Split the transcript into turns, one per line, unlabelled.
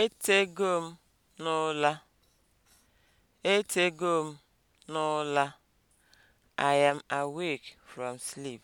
Etego m n'ụla. Etego m n'ụla. I am awake from sleep.